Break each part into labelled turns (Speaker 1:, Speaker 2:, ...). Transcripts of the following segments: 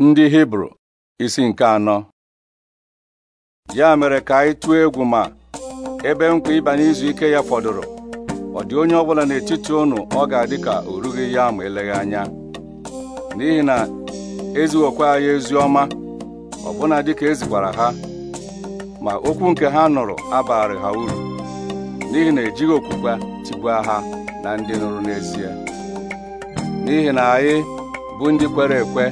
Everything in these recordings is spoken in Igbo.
Speaker 1: ndị hibru isi nke anọ ya mere ka anyị tụọ egwu ma ebe nkwa ịba n'izu ike ya fọdụrụ ọ dị onye ọbụla n'etiti unu ọ ga-adị ka o rughị ya ma eleghị anya n'ihi na ezighokwa anyị ezi ọ ọbụna dịka ezikwara ha ma okwu nke ha nụrụ abarị ha uru n'ihi na ejighị okwukwe tigbuo ha na ndị nụrụ n'ezie n'ihi na anyị bụ ndị kwere ekwe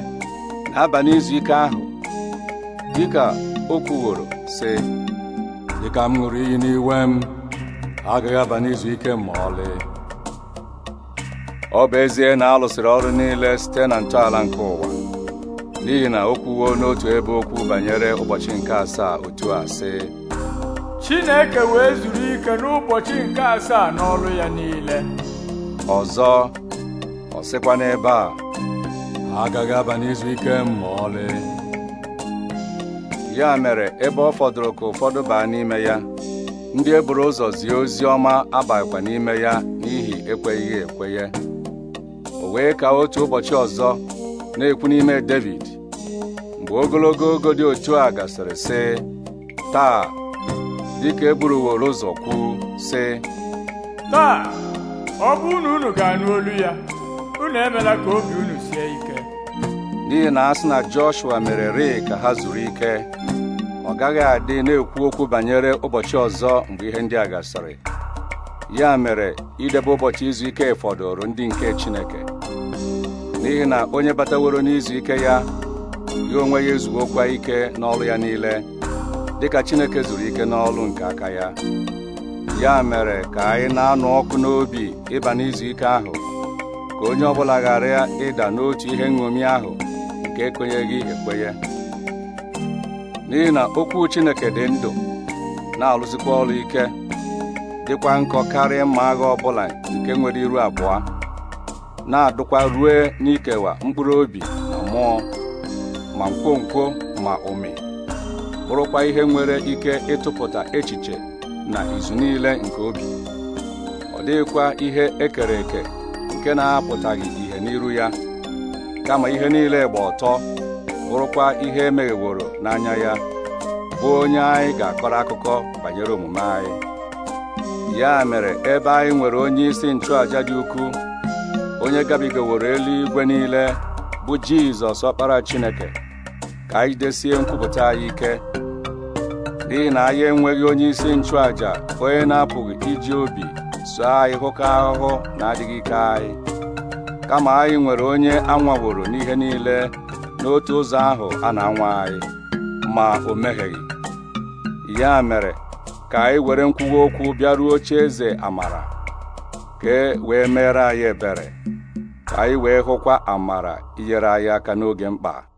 Speaker 1: abalị izu ike ahụ dịka o kwuworo sị dịka m ṅụrụ iyi n'iwe m agaghị aba n'izu ike ma ọlị ọ bụ ezie na a ọrụ niile site na ntọala nke ụwa n'ihi na o kwuwo n'otu ebe okwu banyere ụbọchị nke asaa otu a
Speaker 2: Chineke wee zuru ike n'ụbọchị nke asaa n'ọrụ ya niile
Speaker 1: ọzọ ọ sịkwa n'ebe a agaghị aba n'izu ike eh, ma ọlị ya mere ebe ọ fọdụrụ ka ụfọdụ baa n'ime ya ndị e buru ụzọ zie ozi ọma abakwa n'ime ya n'ihi ekweghị ekwenye o wee ka otu ụbọchị ọzọ na-ekwu n'ime David mgbe ogologo ogo dị otu a gasịrị sị taa dịka e buruworo ụzọ kwu sị
Speaker 2: taa ọ bụ unu ga-anụ olu ya unu emela ka obi unu sie
Speaker 1: n'ihi na ha sị na Joshua mere rịị ka ha zuru ike ọ gaghị adị na-ekwu okwu banyere ụbọchị ọzọ mgbe ihe ndị a gasịrị ya mere idebe ụbọchị izu ike fọdụrụ ndị nke Chineke n'ihi na onye bataworo n'izu ike ya ya onwe ya ezuokwa ike n'ọrụ ya niile dịka Chineke zuru ike n'ọrụ nke aka ya ya mere ka anyị na-anụ ọkụ n'obi ịba n'izu ike ahụ ka onye ọ bụla ghara ịda n'otu ihe nṅomi ahụ nke ekwenyeghị ekwenye n'ihi na okwu Chineke dị ndụ na alụzikwa ọrụ ike dịkwa nkọ karịa mma agha ọ bụla nke nwere iru abụọ na-adụkwa rue n'ikewa mkpụrụ obi na mmụọ ma nkwonkwo ma ụmị bụrụkwa ihe nwere ike ịtụpụta echiche na izu niile nke obi ọ dịghịkwa ihe ekere eke nke na-apụtaghị ihe n'iru ya kama ihe niile gba ọtọ bụrụkwa ihe emegheworo n'anya ya bụ onye anyị ga-akọrọ akụkọ banyere omume anyị ya mere ebe anyị nwere onye isi nchụaja dị ukwuu onye gabigaworo eluigwe niile bụ Jizọs ọkpara Chineke ka anyị desie nkwupụta anyị ike n'ihi na anyị enweghị onye isi nchụaja onye na-apụghị iji obi soo anyị hụkọ ahụhụ na adịghị ike anyị kama anyị nwere onye anwaworo n'ihe niile n'otu ụzọ ahụ a na-anwa anyị ma o mehieghị ya mere ka anyị were nkwuwa okwu bịaruo oche eze amara ka e wee mere anyị ebere ka anyị wee hụkwa amara inyere anyị aka n'oge mkpa